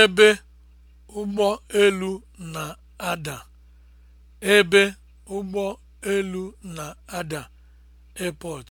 ebe ụgbọ elu na-ada ebe ụgbọ elu na-ada (airport)